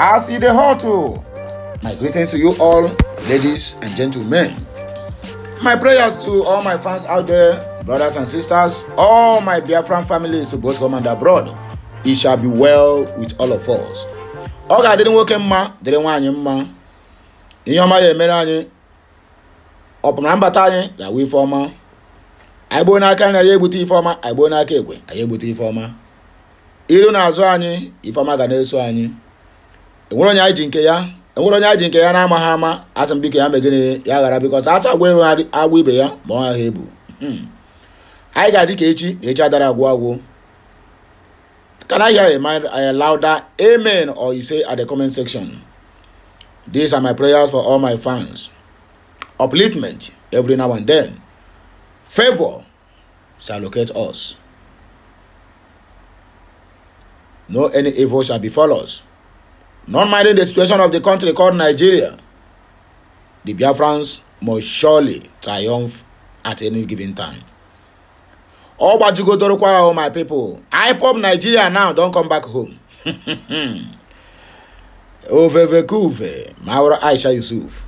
as you the hotel. My greetings to you all, ladies and gentlemen. My prayers to all my fans out there, brothers and sisters, all my Biafran families, both home and abroad. It shall be well with all of us. Oga didn't work in ma, didn't want him ma. Ihe ọma ya emere anyị ọpụmara mbata anyị ga-awụ ife ọma anyị gboo n'aka anyị anyị egbute ife ọma anyị gboo n'aka ekwe anyị egbute ife ọma iru na azụ anyị ife ọma ga na-eso anyị enwere onye anyị ji nke ya enwere onye anyị ji nke ya na-amaghị ama asị m biko ya mee gịnị ya ghara biko sa asa agwa ero agwa ibe ya ma ọ ha ebu hmm. anyị ga-adị ka echi na echi adara agwụ agwụ Can I hear a, mind, a louder amen or you say at the comment section? These are my prayers for all my fans. Upliftment every now and then. Favor shall locate us. No any evil shall befall us not minding the situation of the country called Nigeria, the Biafrans must surely triumph at any given time. but you go Dorokwa, all my people, I pop Nigeria now, don't come back home. Ovevekuve, Maura Aisha Yusuf.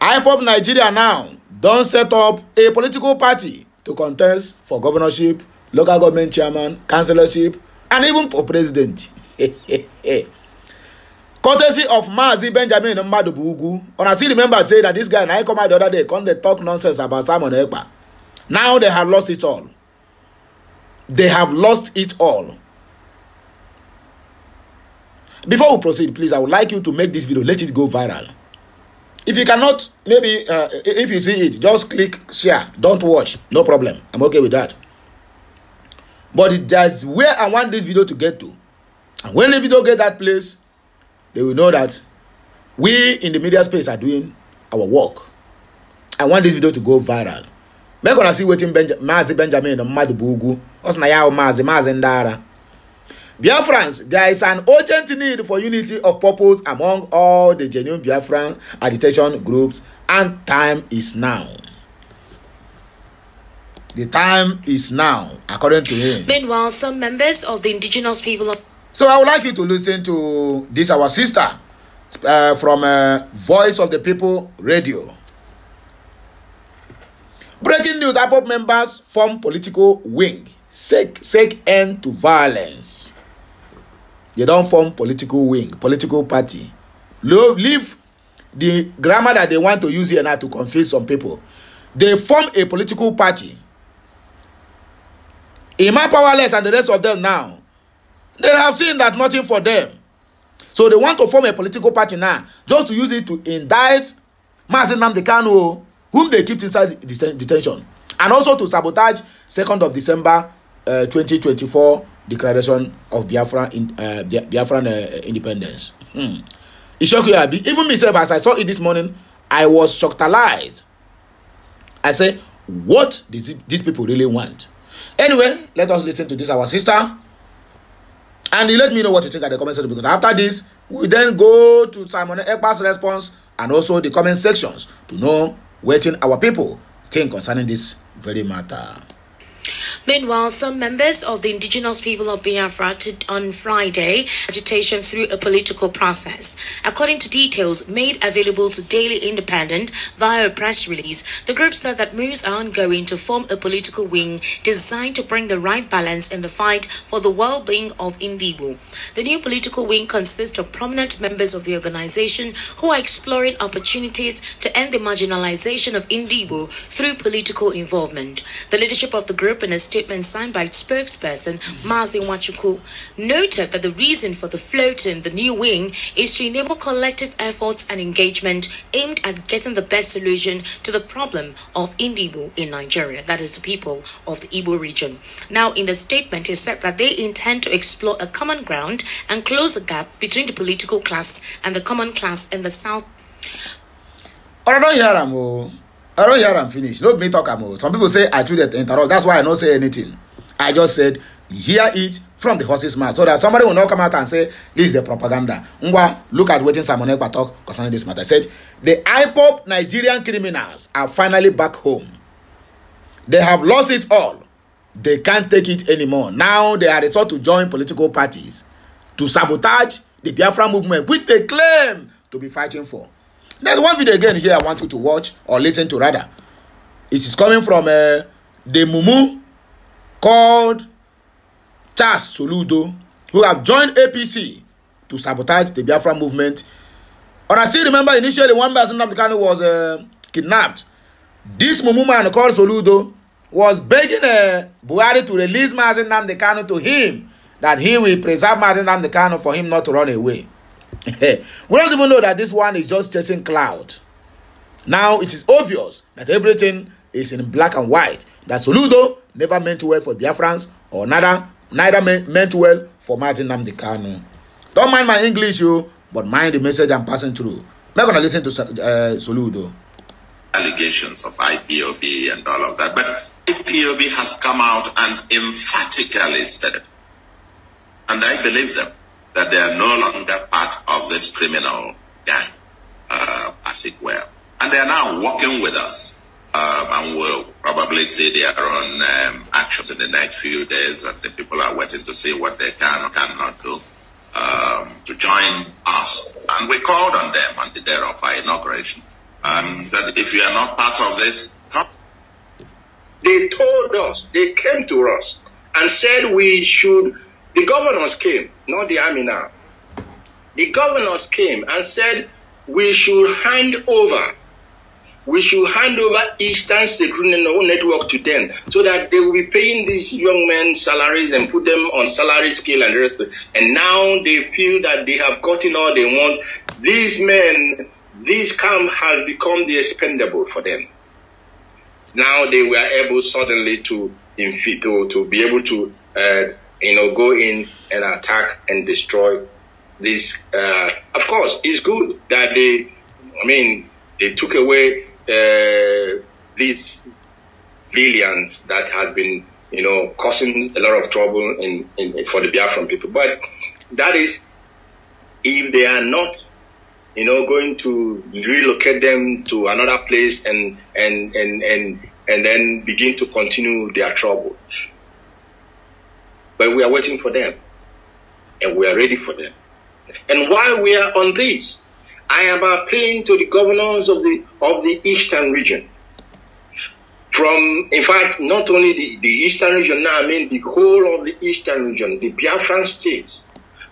I pop Nigeria now, don't set up a political party to contest for governorship, local government chairman, councillorship, and even for president. courtesy of maazi benjamin mmadubu ugwu una still remember say that this guy na I come out the other day come dey talk nonsense about simon ekpa now they have lost it all they have lost it all before we proceed please i would like you to make this video let it go viral if you cannot maybe uh, if you see it just click share don't watch no problem i'm okay with that but that's where i want this video to get to and when the video get that place they will know that we in the media space are doing our work i want this video to go viral make una see wetin Benja maazi benjamin mmadụ bụ ugwu ọ sị na ya maazi maazi ndara. ara biafrans there is an urgent need for unity of purpose among all the genuine biafran agitation groups and time is now. The time is now, according to him. Meanwhile, some members of the indigenous people. So I would like you to listen to this, our sister, uh, from uh, Voice of the People Radio. Breaking news IPOB members form political wing, seek, seek end to violence. They don't form political wing, political party. Leave the grammar that they want to use here now to confuse some people. They form a political party. Emma Powerless and the rest of them now They have seen that nothing for them. So they want to form a political party now just to use it to indict Mazin Nnamdi Kanu, oh, whom they keep inside detention, and also to sabotage Second of December uh, 2024 declaration of Biafran in, uh, Biafran uh, independence. Hmm. It shocked you, Abi. Even myself, as I saw it this morning, I was shocked-alized. I say, what does these people really want? Anyway, let us listen to this, our sister and you let me know what you think at the comment section because after this we then go to simon ekpa's response and also the comment sections to know wetin our people think concerning this very matter. Meanwhile, some members of the indigenous people of Biafra on Friday agitation through a political process. According to details made available to Daily Independent via a press release, the group said that moves are ongoing to form a political wing designed to bring the right balance in the fight for the well-being of Indigo. The new political wing consists of prominent members of the organization who are exploring opportunities to end the marginalization of Indigo through political involvement. The leadership of the group in a statement signed by its spokesperson, Mazi Wachuku, noted that the reason for the float in the new wing is to enable collective efforts and engagement aimed at getting the best solution to the problem of Indibu in Nigeria, that is, the people of the Igbo region. Now, in the statement, he said that they intend to explore a common ground and close the gap between the political class and the common class in the South. I don't hear am finish. No be me talk am o. Some people say I too dey interrupt. That's why I no say anything. I just said hear it from the horse's mouth so that somebody will not come out and say this is the propaganda. Ngwa, look at wetin Simon Ekpa talk concerning this matter. He said the IPOB Nigerian criminals are finally back home. They have lost it all. They can't take it anymore. Now they are resort to join political parties to sabotage the Biafra movement which they claim to be fighting for. There's one video again here I want you to watch or listen to rather. It is coming from uh, the Mumu called Charles Soludo who have joined APC to sabotage the Biafra movement. And I still remember initially one person of the Namdekano was uh, kidnapped. This Mumu man called Soludo was begging uh, Buhari to release Mazen Namdekano to him that he will preserve Mazen Namdekano for him not to run away. we don't even know that this one is just chasing cloud. Now it is obvious that everything is in black and white. That Soludo never meant well for Biafrans or neither, neither meant well for Martin Namdekanu. Don't mind my English, you, but mind the message I'm passing through. Not going to listen to uh, Soludo. Allegations of IPOB and all of that. But IPOB has come out and emphatically said, and I believe them that they are no longer part of this criminal gang, uh, as it were. And they are now working with us. Um, and we'll probably see their own um, actions in the next few days, and the people are waiting to see what they can or cannot do um, to join us. And we called on them on the day of our inauguration that um, if you are not part of this, come. They told us, they came to us and said we should the governors came, not the army now. The governors came and said, we should hand over we should hand over Eastern Security Network to them so that they will be paying these young men salaries and put them on salary scale and the rest. And now they feel that they have gotten all they want. These men, this camp has become the expendable for them. Now they were able suddenly to, to, to be able to uh, you know, go in and attack and destroy this. Uh, of course, it's good that they, I mean, they took away uh, these villains that had been, you know, causing a lot of trouble in, in for the Biafran people. But that is if they are not, you know, going to relocate them to another place and and and and and then begin to continue their trouble. But we are waiting for them. And we are ready for them. And while we are on this, I am appealing to the governors of the of the eastern region. From in fact, not only the, the eastern region now, I mean the whole of the eastern region, the Biafran states,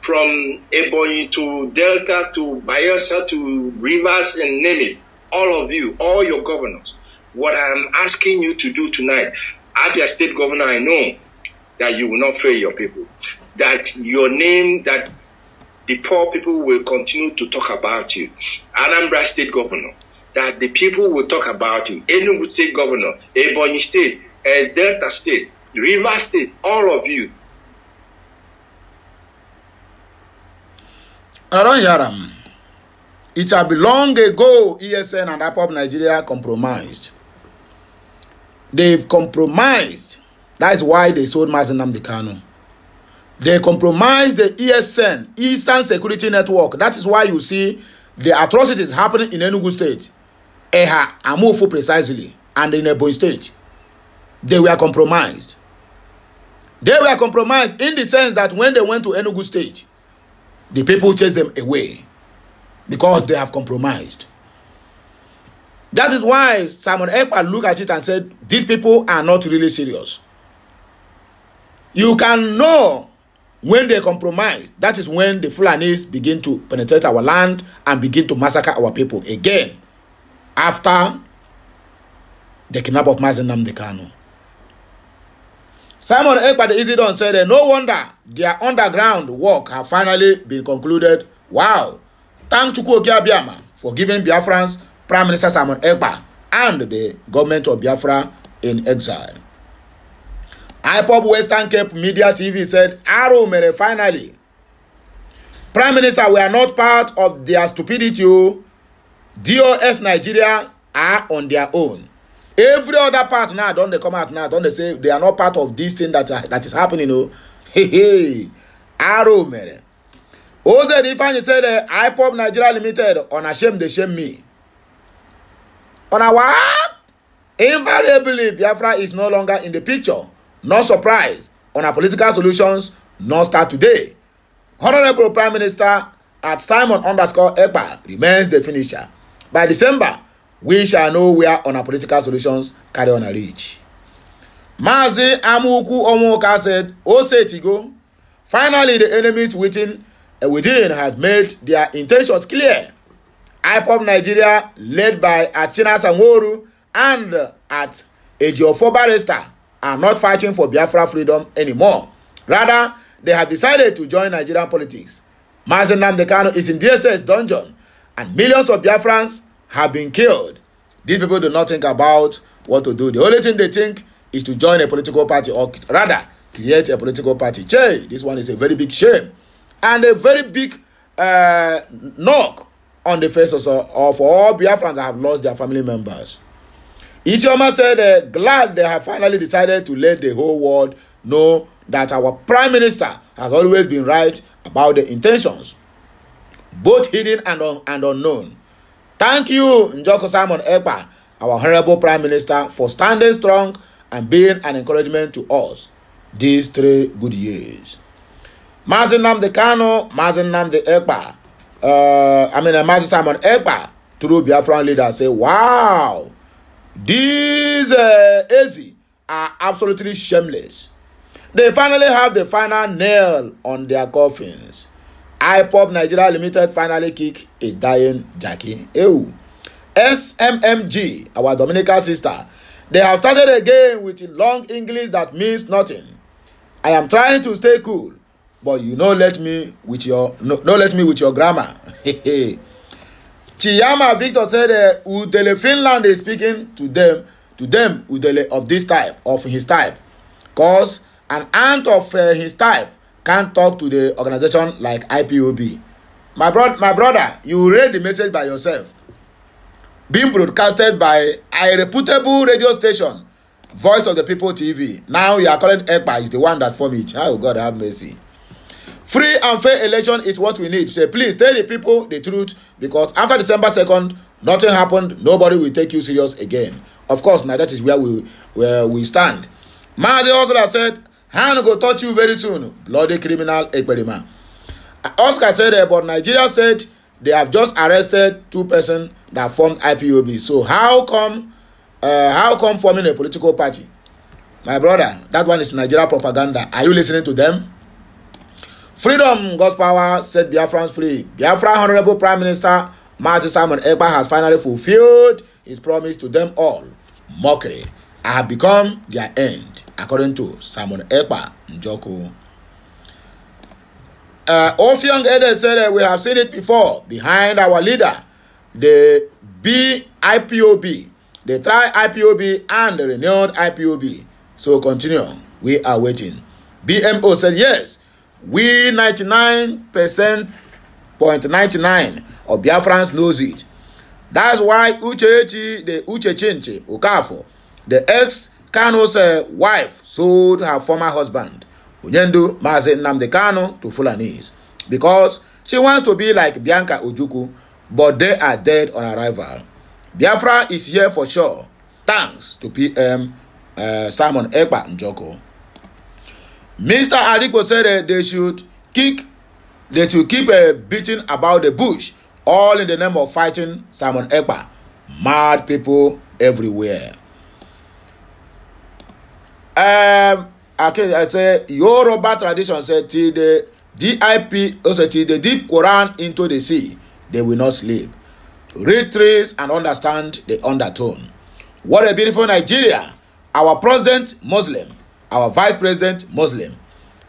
from Ebony to Delta to Bayelsa to Rivers and name it, all of you, all your governors, what I am asking you to do tonight, Abia State Governor, I know that you will not fail your people, that your name, that the poor people will continue to talk about you. Anambra State Governor, that the people will talk about you. Enugu State Governor, Ebony State, uh, Delta State, River State, all of you. I don't hear them. It had been long ago ESN and APOP Nigeria compromised. They've compromised That's why they sold Mazen Namdekano. They compromised the ESN, Eastern Security Network. That is why you see the atrocities happening in Enugu State, Eha, Amufu precisely, and in Ebonyi State. They were compromised. They were compromised in the sense that when they went to Enugu State, the people chased them away because they have compromised. That is why Simon Ekpa looked at it and said, these people are not really serious. You can know when they compromise. That is when the Fulanis begin to penetrate our land and begin to massacre our people again. After the kidnap of Mazenam Dekano. Simon Ekbad Isidon said, No wonder their underground work have finally been concluded. Wow. Thank Chukwu Okiabiama for giving Biafrans Prime Minister Simon Ekpa and the government of Biafra in exile. IPOB Western Cape Media TV said "Aro mere, finally. Prime Minister, we are not part of their stupidity. Oh. DOS Nigeria are on their own. Every other part now, don't they come out now? Don't they say they are not part of this thing that, uh, that is happening? O, oh. hehe, Aro mere. Ose Difanyi said uh, IPOB Nigeria Limited on a shame they shame me. On a what? Invariably, Biafra is no longer in the picture. No surprise on our political solutions No start today. Honourable Prime Minister at Simon underscore Ekpa remains the finisher. By December, we shall know where on our political solutions carry on a reach. Mazi Amuku Omoka said, Osetigo, finally the enemies within, uh, within has made their intentions clear. IPOP Nigeria, led by Achina Sanworu and at Ejiofor Barrister, are not fighting for Biafra freedom anymore. Rather, they have decided to join Nigerian politics. Mazen Namdekano is in DSS dungeon and millions of Biafrans have been killed. These people do not think about what to do. The only thing they think is to join a political party or rather create a political party. Jay, this one is a very big shame and a very big uh, knock on the faces of, of all Biafrans that have lost their family members. Isioma said, uh, glad they have finally decided to let the whole world know that our prime minister has always been right about the intentions, both hidden and, un and unknown. Thank you, Njoko Simon Ekpa, our honorable prime minister, for standing strong and being an encouragement to us these three good years. Mazin Namdi Kano, Mazin Namdi Ekpa, uh, I mean, uh, Mazin Simon Ekpa, through Biafran leader, say, wow. These uh, Ezi are absolutely shameless. They finally have the final nail on their coffins. IPOP Nigeria Limited finally kick a dying Jackie. Ew. SMMG, our Dominican sister, they have started again with long English that means nothing. I am trying to stay cool, but you no let me with your no, no let me with your grammar. Chiyama Victor said uh, Udele Finland is speaking to them, to them Udele of this type, of his type. Cause an aunt of uh, his type can't talk to the organization like IPOB. My, bro my brother, you read the message by yourself. Being broadcasted by a reputable radio station, Voice of the People TV. Now you are calling EPA is the one that formed it. Oh God, have mercy. Free and fair election is what we need. So please tell the people the truth because after December second, nothing happened. Nobody will take you serious again. Of course, now that is where we where we stand. Mazi Oscar said, Hand go touch you very soon. Bloody criminal Ekperima. Oscar said, uh, but Nigeria said they have just arrested two persons that formed IPOB. So how come uh, how come forming a political party? My brother, that one is Nigeria propaganda. Are you listening to them? Freedom, God's power, set Biafrans free. Biafra Honorable Prime Minister Martin Simon Ekpa has finally fulfilled his promise to them all. Mockery. I have become their end, according to Simon Ekpa Njoku. Uh, Ofiong Ede said that we have seen it before. Behind our leader, the BIPOB, the try IPOB and the renewed IPOB. So continue. We are waiting. BMO said yes. We ninety nine percent point ninety 99 of Biafrans knows it. That's why Uchechi, the Uchechinche Okafor, the ex Kano's uh, wife, sold her former husband, Unyendu Maze Namde Kano, to Fulanese because she wants to be like Bianca Ojuku, but they are dead on arrival. Biafra is here for sure, thanks to PM uh, Simon Ekpa Njoko. Mr. Adikpo said uh, they should kick, they should keep uh, beating about the bush, all in the name of fighting Simon Ekpa. Mad people everywhere. Um, okay, I say Yoruba tradition said till the DIP, also oh, till the deep Quran into the sea, they will not sleep. Read trees and understand the undertone. What a beautiful Nigeria! Our president, Muslim our vice president muslim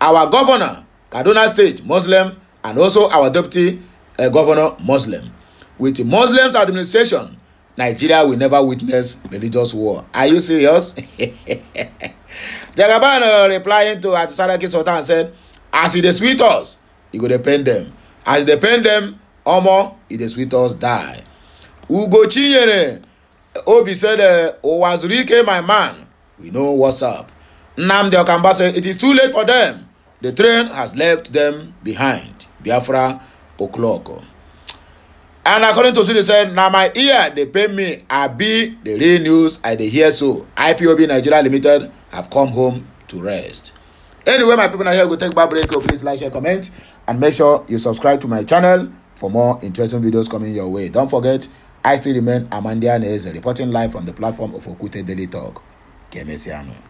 our governor kaduna state muslim and also our deputy uh, governor muslim with muslims administration nigeria will never witness religious war are you serious jagaban uh, replying to atisaraki sultan said as e dey sweet us e go dey pain dem as e dey pain dem omo e dey sweet us die ugochinyere obi said uh, owazurike my man we know what's up Nnamdi Okamba said it is too late for them. The train has left them behind. Biafra Okloko. And according to Sule said, na my ear dey pain me. Abi the real news I dey hear so. IPOB Nigeria Limited have come home to rest. Anyway, my people na here go take back break. Oh, please like, share, comment, and make sure you subscribe to my channel for more interesting videos coming your way. Don't forget, I still remain Amandia Neze, reporting live from the platform of Okute Daily Talk. Kemesiano.